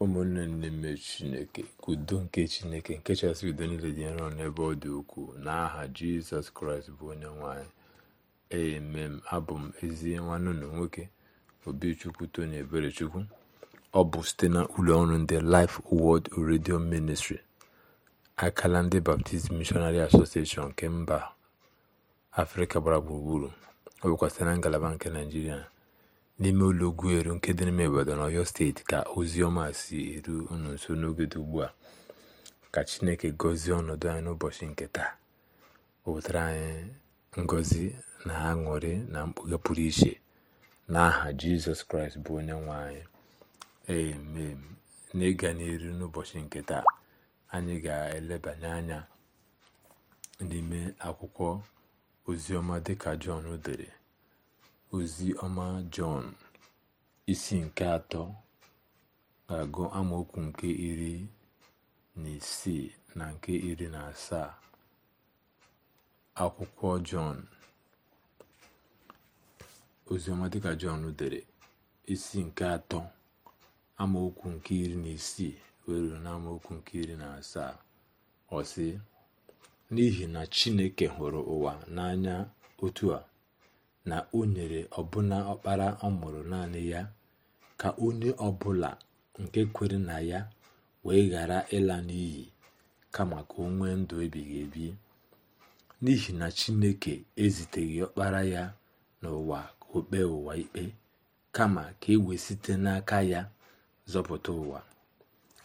ụmụnne n'ime chineke ka udo nke chineke nke chasị udo niile dị nrọ n'ebe ọ dị ukwuu n'aha jizọs kraịst bụ onye nwanyị emem abụ m ezi nwanne ụlọ nwoke obichukwu tony eberechukwu ọ bụ site na ụlọ ọrụ ndị life wod redio ministri akala ndị baptist missionary association nke mba afrịka gbara gburugburu ọ bụkwa site na ngalaba nke naijiria n'ime ụlọ Ugwueru nke dị n'ime Ibadan steeti ka ozi si eru unu nso n'oge dị ugbu a ka Chineke gọzie ọnọdụ anyị n'ụbọchị nke taa o anyị ngozi na aṅụrị na mkpughe pụrụ iche n'aha Jizọs Kraịst bụ onye nwe anyị emem n'ịga n'iru n'ụbọchị nke taa anyị ga-elebanye anya n'ime akwụkwọ oziọma dịka Jọn dere ozi ọma jọn isi nke atọ ga-agụ amaokwu nke iri na isii na nke iri na asaa akwụkwọ jọn oziọma dịka jọn dere isi nke atọ amaokwu nke iri na isii were n'amaokwu nke iri na asaa ọ sị n'ihi na chineke hụrụ ụwa n'anya otu a na o nyere ọbụna ọkpara ọ mụrụ naanị ya ka onye ọbụla nke kwere na ya wee ghara ịla n'iyi kama ka o nwee ndụ ebighị ebi n'ihi na chineke eziteghị ọkpara ya n'ụwa ka o kpee ụwa ikpe kama ka e wee site n'aka ya zọpụta ụwa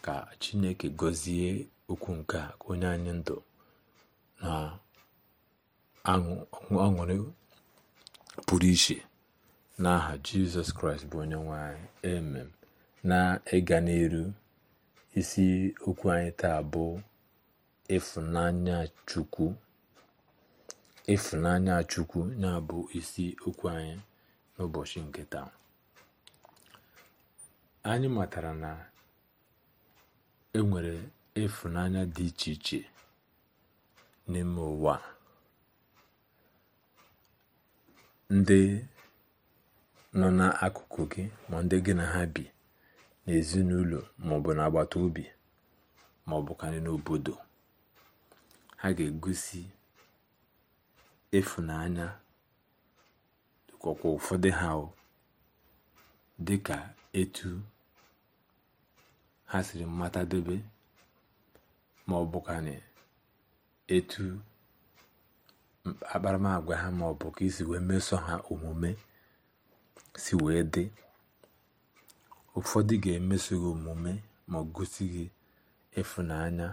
ka chineke gọzie okwu nke onye anyị ndụ na aṅụrị pụrụ iche n'aha jizọs kraịst bụ onye nwanyị emem na ịga n'elu isi okwu anyị taa bụ ịfụnanya chukwu ịfụnanya chukwu ya bụ isi okwu anyị n'ụbọchị nke taa anyị matara na enwere ịfụnanya dị iche iche n'ime ụwa ndị nọ n'akụkụ gị ma ndị gị na ha bi n'ezinụlọ maọbụ n'agbata obi maọbụkarị n'obodo ha ga-egosi ịfụnanya dịkwakwa ụfọdụ ha dị ka etu ha siri mmatadebe ma ọ bụkwanị etu akparamagwa ha ma ọ bụ ka isi wee meso ha omume si wee dị ụfọdụ ga-emeso gị omume ma ọ gosi gị ịfụnanya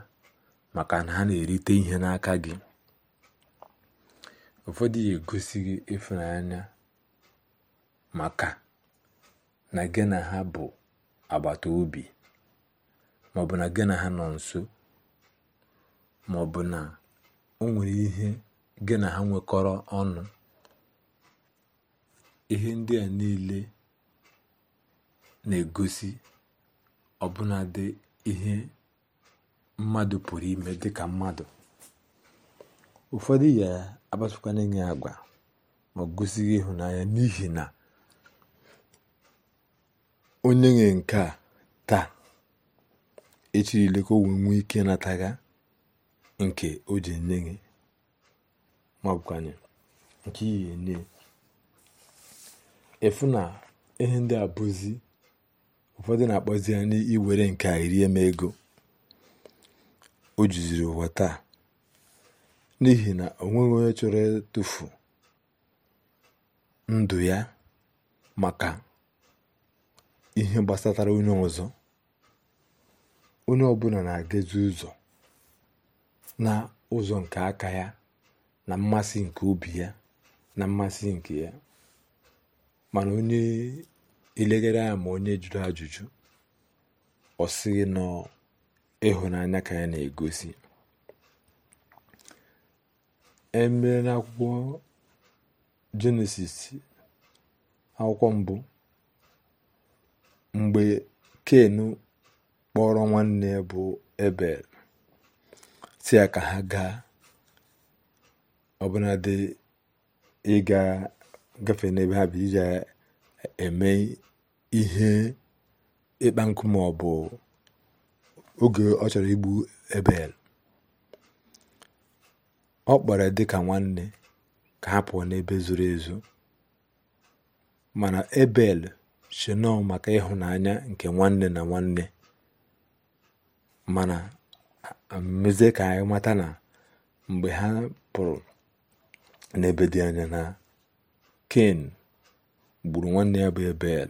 maka na ha na-erite ihe n'aka gị ụfọdụ ga-egosi gị ịfụnanya maka na gị na ha bụ agbata obi maọbụ na gị na ha nọ nso maọbụ na o nwere ihe gị na ha nwekọrọ ọnụ ihe ndị a niile na-egosi ọbụnadị ihe mmadụ pụrụ ime dịka mmadụ ụfọdụ ya abasịkwana agwa ma gosi gị ịhụnanya n'ihi na onye nwe nke a taa echirile ka o wee nwee ike nataga nke o ji nye gị ma ọ nke ihe nne efu na ihe ndị a ụfọdụ na-akpọzi ya n'iwere nke a iri eme ego o juziri ụwa taa n'ihi na o nweghị onye chọrọ ịtụfu ndụ ya maka ihe gbasatara onye ọzọ onye ọbụla na-agazi ụzọ na ụzọ nke aka ya na mmasị nke obi ya na mmasị nke ya mana onye elegere ya ma onye jụrụ ajụjụ ọ sịghị nọ ịhụnanya ka ya na-egosi emere n'akwụkwọ jenesis akwụkwọ mbụ mgbe ken kpọrọ nwanne bụ ebel si ya ka ha gaa ọbụnadị ịga gafe n'ebe ha bụ iji eme ihe ịkpa nkụ ma bụ oge ọ chọrọ igbu ebel ọ kpọrọ dị ka nwanne ka ha pụọ n'ebe zuru ezu mana ebel si maka ịhụnanya nke nwanne na nwanne mana mezie ka anyị mata na mgbe ha pụrụ n'ebe dị anya na ken gburu nwanne ya bụ ebel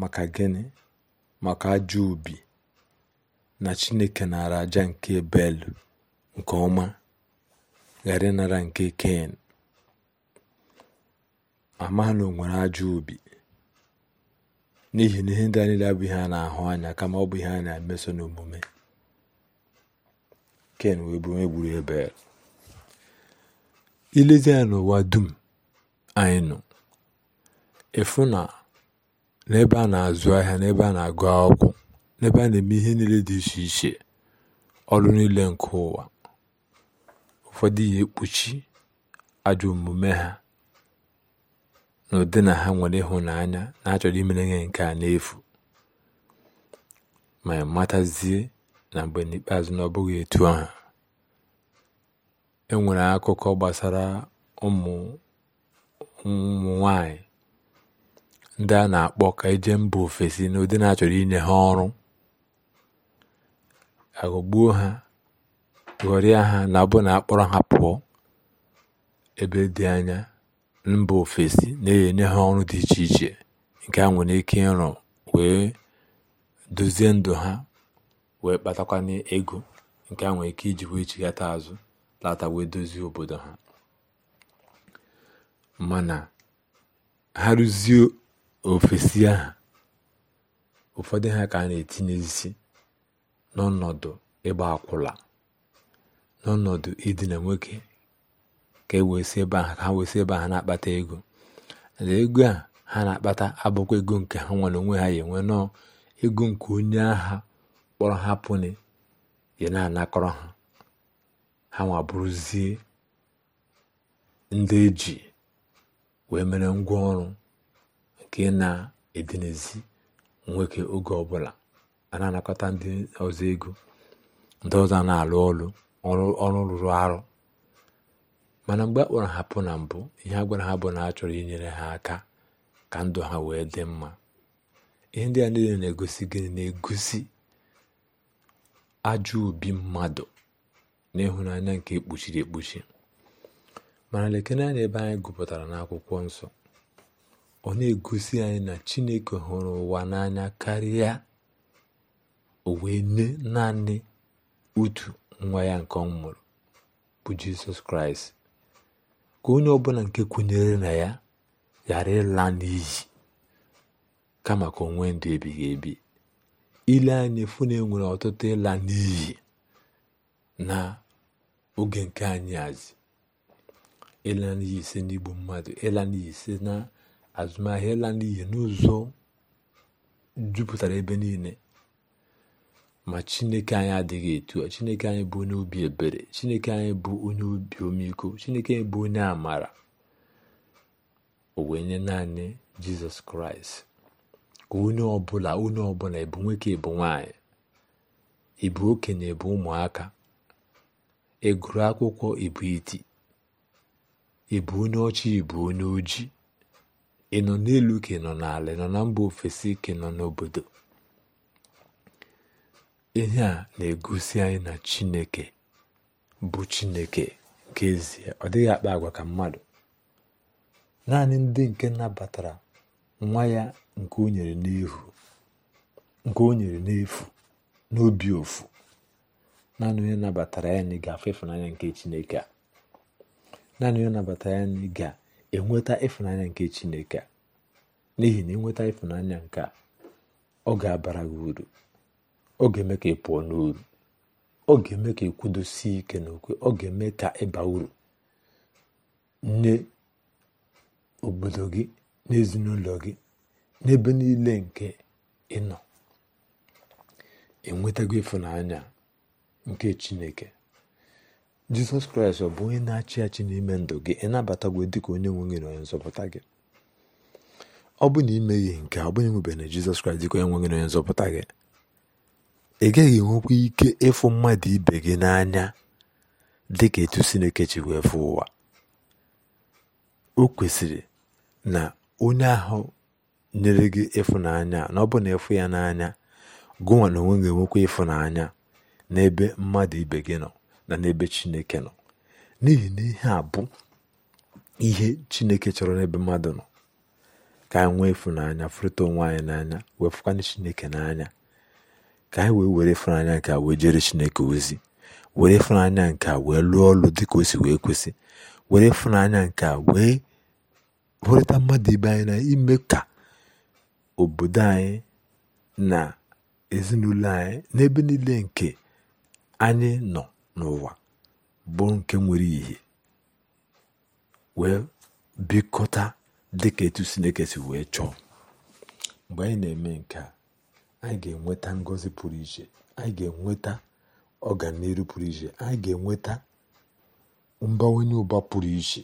maka gịnị maka ajọ obi na chineke nara aja nke ebel nke ọma ghara ịnara nke ken amana o nwere ajọ obi n'ihi na ihe ndị a abụghị a na-ahụ anya kama ọ bụ ihe a na-emeso n'omume ken wee bụ onye gburu ebel ilezi ya n'ụwa dum anyị nọ efu na n'ebe a na-azụ ahịa n'ebe a na-agụ akwụkwọ n'ebe a na-eme ihe niile dị iche iche ọrụ niile nke ụwa ụfọdụ ihe ekpuchi ajọ omume ha na na ha nwere ịhụnanya na-achọrọ imere ihe nke a n'efu ma matazie na mgbe n'ikpeazụ na ọ bụghị etu ahụ enwere akụkọ gbasara ụmụ nwanyị ndị a na-akpọ ka eje mba ofesi n'ụdị na-achọrọ inye ha ọrụ agụgbuo ha ghọrịa ha na bụ na akpọrọ ha pụọ ebe dị anya mba ofesi na-enye ha ọrụ dị iche iche nke a nwere ike ịrụ wee dozie ndụ ha wee kpatakwana ego nke a nwere ike iji wee azụ lata wee dozie obodo ha mana ha rụzie ofesi ahụ ụfọdụ ha ka a na-etinyezi n'ọnọdụ ịgba akwụla n'ọnọdụ idina nwoke ka e wee ebe ahụ ka ha ebe na-akpata ego na ego a ha na-akpata abụkwa ego nke ha nwere onwe ha ya enwe nọọ ego nke onye agha kpọrọ ha pụni ya na-anakọrọ ha ha nwa bụrụzie ndị eji wee mere ngwa ọrụ nke na edinezi nwoke oge ọbụla a na-anakọta ndị ọzọ ego ndị ọzọ na-alụ ọrụ ọrụ rụrụ arụ mana mgbe a kpọrọ ha na mbụ ihe a gwara ha bụ na a chọrọ inyere ha aka ka ndụ ha wee dị mma ihe ndị a niile na-egosi gịnị na-egosi ajọ obi mmadụ na ịhụnanya nke ekpuchiri ekpuchi mana lekene anya ebe anyị gụpụtara n'akwụkwọ nsọ ọ na-egosi anyị na chineke hụrụ ụwa n'anya karịa o wee nye naanị otu nwa ya nke ọ mụrụ bụ jizọs kraịst ka onye ọbụla nke kwenyere na ya ghara ịla n'iyi kama ka onwe ndụ ebighị ebi ile anyị efu na e ọtụtụ ịla n'iyi na oge nke anyị azị ịla n'iyi ise n'igbu mmadụ ịla n'iyi ise na azụmahịa ịla n'iyi n'ụzọ jupụtara ebe niile ma chineke anyị adịghị etu a chineke anyị bụ onye obi ebere chineke anyị bụ onye obi omiko chineke anyị bụ onye amara o naanị jizọs kraịst ka onye ọbụla onye ọbụla ịbụ nwoke ịbụ nwanyị ịbụ okenye ịbụ ụmụaka Eguru akwụkwọ ibu iti ibu onye ọcha ibu onye ojii ị nọ n'elu ka ị nọ n'ala nọ na mba ofesi ka ị nọ n'obodo ihe a na-egosi anyị na chineke bụ chineke nke ezie ọ dịghị akpa agwa ka mmadụ naanị ndị nke nabatara nwa ya nke o nyere n'efu n'obi ofu naanị onye nabatara ya anyị ga-afụ ịfụnanya nke chineke a naanị onye nabatara ya anyị ga-enweta ịfụnanya nke chineke a n'ihi na ịnweta ịfụnanya nke a ọ ga-abara gị uru ọ ga-eme ka ị pụọ n'uru ọ ga-eme ka ị kwudosie ike n'okwe ọ ga-eme ka ịba uru nye obodo gị n'ezinụlọ gị n'ebe niile nke ịnọ enwetago ịfụnanya nke chineke jizọs kraịst ọ bụ onye na-achị achị n'ime ndụ gị ịnabatagwo dịka onye nwe gị na onye nzọpụta gị ọ bụ na imeghị nke ọ bụghị nwebe na jizọs kraịst dịka onye nwe na onye nzọpụta gị ị gaghị enwekwa ike ịfụ mmadụ ibe gị n'anya dị ka etu Sineke chi wee fụ ụwa o kwesịrị na onye ahụ nyere gị ịfụnanya na ọ bụ na ịfụ ya n'anya gụnwa na onwe gị enwekwa ịfụnanya n'ebe mmadụ ibe gị nọ na n'ebe chineke nọ n'ihi na ihe a bụ ihe chineke chọrọ n'ebe mmadụ nọ ka anyị nwee ịfụnanya fụrịta onwe anyị n'anya wefụkwana chineke n'anya ka anyị wee were ịfụnanya nke a wee jere chineke ozi were ịfụnanya nke a wee lụọ ọrụ dịka o si wee kwesị were ịfụnanya nke a wee hụrịta mmadụ ibe anyị na ime ka obodo anyị na ezinụlọ anyị n'ebe niile nke anyị nọ n'ụwa bụ nke nwere ihe wee bikọta dịka etu Chineke wee chọọ mgbe anyị na-eme nke a anyị ga-enweta ngọzi pụrụ iche anyị ga-enweta ọganihu pụrụ iche anyị ga-enweta mbawanye ụba pụrụ iche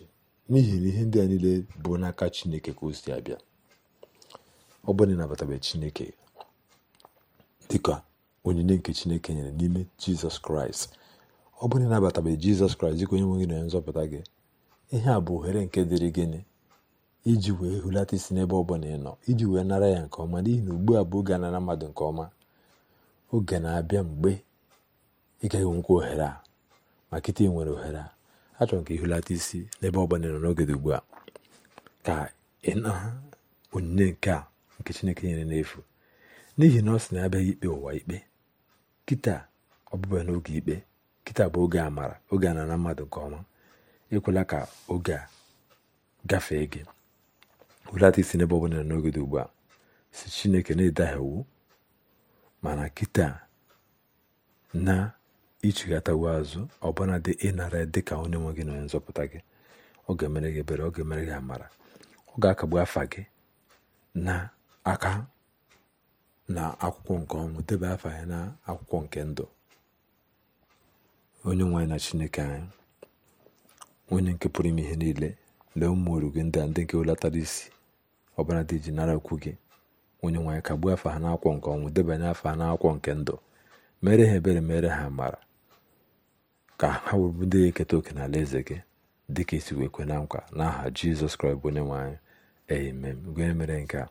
n'ihi na ihe ndị a niile bụ n'aka Chineke ka o si abịa ọ bụrụ na Chineke dịka onyinye nke chineke nyere n'ime jizọs kraịst ọ bụrụ na ịnabatabeghị jizọs kraịst dịka onye nwe gị na nzọpụta gị ihe a bụ ohere nke dịrị gịnị iji wee hulata isi n'ebe ọ ị nọ iji wee nara ya nke ọma n'ihi na ugbu a bụ oge anara mmadụ nke ọma oge na-abịa mgbe ị gaghị enwekwa ohere a ma kịta nwere ohere a achọrọ ka ị hulata isi n'ebe ọ ịnọ ị nọ n'oge dị ugbu a ka ị na onyinye nke a nke chineke nyere n'efu n'ihi na ọ sị na abịaghị ikpe ụwa ikpe kịta ọbụbụ n'oge ikpe kịta bụ oge amara oge a na mmadụ nke ọma ekwela ka oge a gafee gị welata isi n'ebe ọ bụla n'oge dị ugbu a si chineke na-edagha iwu mana kịta na uwe azụ ọbụla dị ịnara dị ka onye nwe gị na onye nzọpụta gị ọ ga-emere gị ebere ọ ga-emere gị amara ọ ga-akagbu afa gị na aka na akwụkwọ nke ọnwụ deba afa anyị na akwụkwọ nke ndụ onye nwe na chineke anyị onye nke pụrụ ime ihe niile lee ụmụ oru gị ndị a ndị nke isi ọbara dị ji nara okwu gị onye nwanyị ka gbuo afa ha n'akwụkwọ nke ọnwụ debanye afa ha n'akwụkwọ nke ndụ mere ha ebere mere ha mara ka ha wụrụ ndị ga-eketa oke na ala eze gị ka esi wee kwe na nkwa n'aha jizọs kraịst bụ onye nwe anyị amen gụnye mere nke a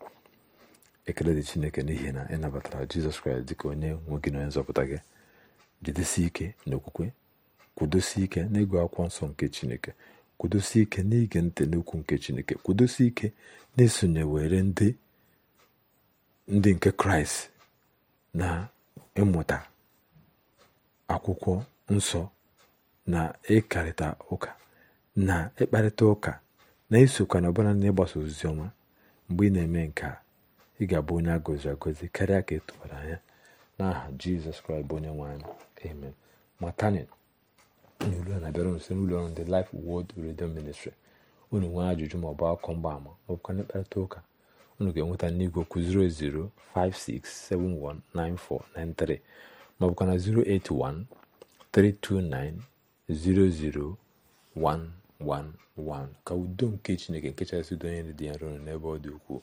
ekele dị chineke n'ihi na ị nabatara jizọs kraịst ka onye nwe gị na onye nzọpụta gị jidesi ike n'okwukwe kwudosi ike n'ịgụ akwụkwọ nsọ nke chineke kwudosi ike n'ige ntị n'okwu nke chineke kwudosi ike na esonyewere were ndị ndị nke kraịst na ịmụta akwụkwọ nsọ na ịkarịta ụka na ịkparịta ụka na isokwa na ọbụla na ịgbasa ozizi ọma mgbe ị na-eme nke a ị ga-abụ onye a gọziri agọzi karịa ka etụbara anya n'aha jizọs kraịst bụ onye nwanyị. amen matani n'olu ya na-abịara nso n'ụlọ ọrụ ndị Life Word Radio ministri unu nwee ajụjụ ma bụ akụkọ mgbaama ama na mkparịta ụka unu ga-enweta n'igwe okwu 08056719493 maọbụkwa na 08132900111 ka udo nke Chineke nke kachasị udo onye dị ya nro n'ebe ọ dị ukwuu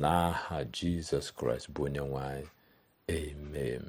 n'aha jizọs kraịst bụ onye nwe amen